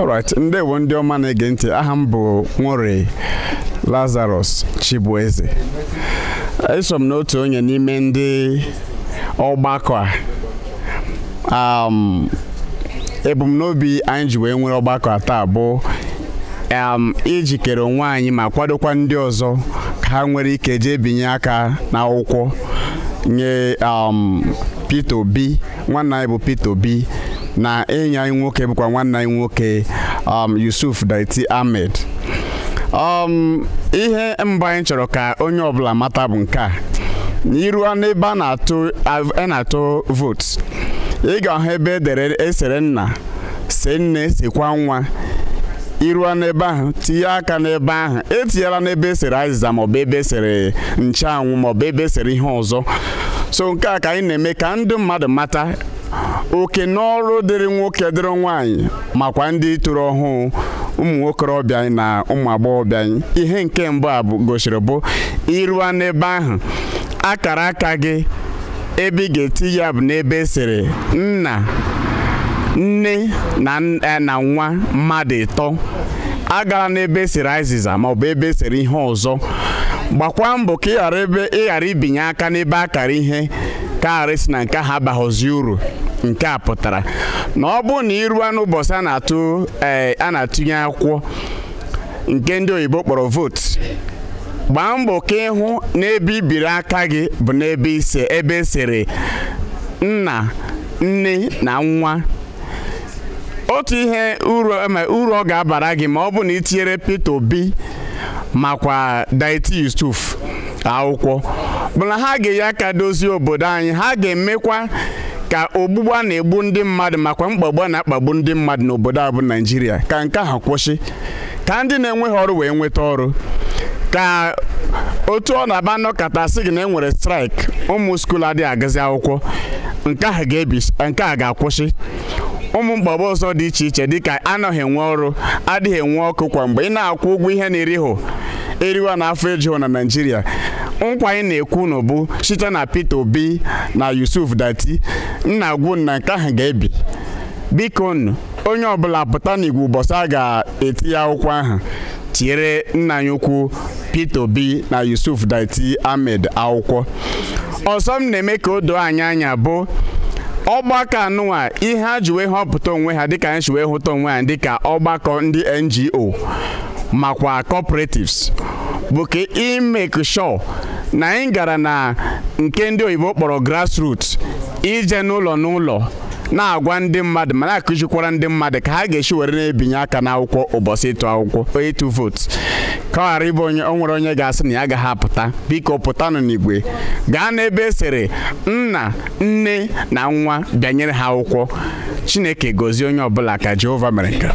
alright ndewo ndị ọma na-ege ntị aha m bụ nwore lazarus chibueze eso m n'otu onye n'ime ndị ọgbakọ a um, ebumnobi anyị ji wee nwere ọgbakọ taa bụ um, ijikere onwe anyị ma kwadokwa ndị ọzọ ka ha nwere ike jee binye aka n'akwụkwọ nye um, Peter Obi nwanne anyị bụ Peter Obi na ịnya anyị nwoke bụkwa nwanne anyị nwoke um, Yusuf Daiti Ahmed um, ihe mba anyị chọrọ ka onye ọbụla mata bụ nke a iruo n'ebe a na-atụ votu ị ga-ahụ ebe edere esere nna se nne sekwa nwa iruo n'ebe ahụ tinye aka n'ebe ahụ etinyela n'ebe esere azịza maọbụ ebe esere nchụanwụ maọbụ ebe esere ihe ọzọ so nke a ka anyị na-eme ka ndị mmadụ mata oke n'ọrụ dịrị nwoke dịrị nwaanyị makwa ndị toro ọhụụ ụmụ nwokorobịa anyị na ụmụ agbọghọbịa ihe nke mbụ a gosiri bụ ịrụa n'ebe ahụ akara aka gị ebe ị ga-eti ya bụ n'ebe esiri nna nne e, na nwa mmadụ ịtọ agala n'ebe esiri azịza maọbụ ebe esere ihe ọzọ gbakwa mbọ ka ị ghara ibinye aka n'ebe akara ihe nke a si na nke ahụ abaghọzi uru nke a pụtara na ọ bụrụ na ịruo n'ụbọchị a na-atụ eh, a na-atụnye akwụkwọ nke ndị oyibo kpọrọ votu gbaa mbọ ka ịhụ n'ebe ibiri aka gị bụ n'ebe ise ebe esere nna nne na nwa otu ihe uru ọ ga-abara gị ma ọ bụ na itinyere Peter Obi makwa Diet akwụkwọ bụ ha ga-eyi aka dozie obodo anyị ha ga-emekwa ka ogbugbu a na-egbu ndị mmadụ makwa mkpagbu na-akpagbu ndị mmadụ n'obodo a bụ Naịjirịa ka nke ha kwụsị ka ndị na-enweghị ọrụ wee nweta ọrụ ka otu ọ na-aba nnọkọta sị na enwere nwere straịk ụmụ skuul adịghị agazi akwụkwọ nke a ga-akwụsị ụmụ mgbagba ọzọ dị iche iche dịka anọghị enwe ọrụ adịghị enwe ọkụ kwa mgbe ị na-akwụ ụgwọ ihe na eriho eriwa na afọ ejuhụ na Naịjirịa nkwa anyị na-ekwu bụ site na Peter Obi na Yusuf Dati nna agwụ na nke ahụ ga-ebi biko nụ onye ọbụla pụta igwe ụbọchị a ga-eti ya akwụkwọ ahụ tinyere nna anyị ukwu Peter Obi na Yusuf Dati Ahmed akwụkwọ ọzọ m na-eme ka o doo anyị anya bụ ọgbakọ anụnwa ihe ha ji wee họpụta onwe ha dịka anyị si wee hụta onwe ha dịka ọgbakọ ndị NGO makwa cooperatives bụ ka imeke sure na anyị gara na nke ndị oyibo kpọrọ grassroot ije n'ụlọ n'ụlọ na-agwa ndị mmadụ ma na-akụzikwara ndị mmadụ ka ha ga-esi were na-ebinye aka n'akwụkwọ ụbọchị ịtụ akwụkwọ ịtụ vootu. ka ọ ghara ịbụ onye nwere onye ga-asị na ya agaghị apụta biko pụtanụ n'igwe gaa n'ebe esere nna nne na nwa bịanyere ha akwụkwọ chineke gozie onye ọbụla ka jehova mere nke